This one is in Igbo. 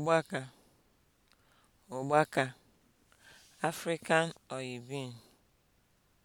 Ọgbakọ Ọgbakọ African oyibin.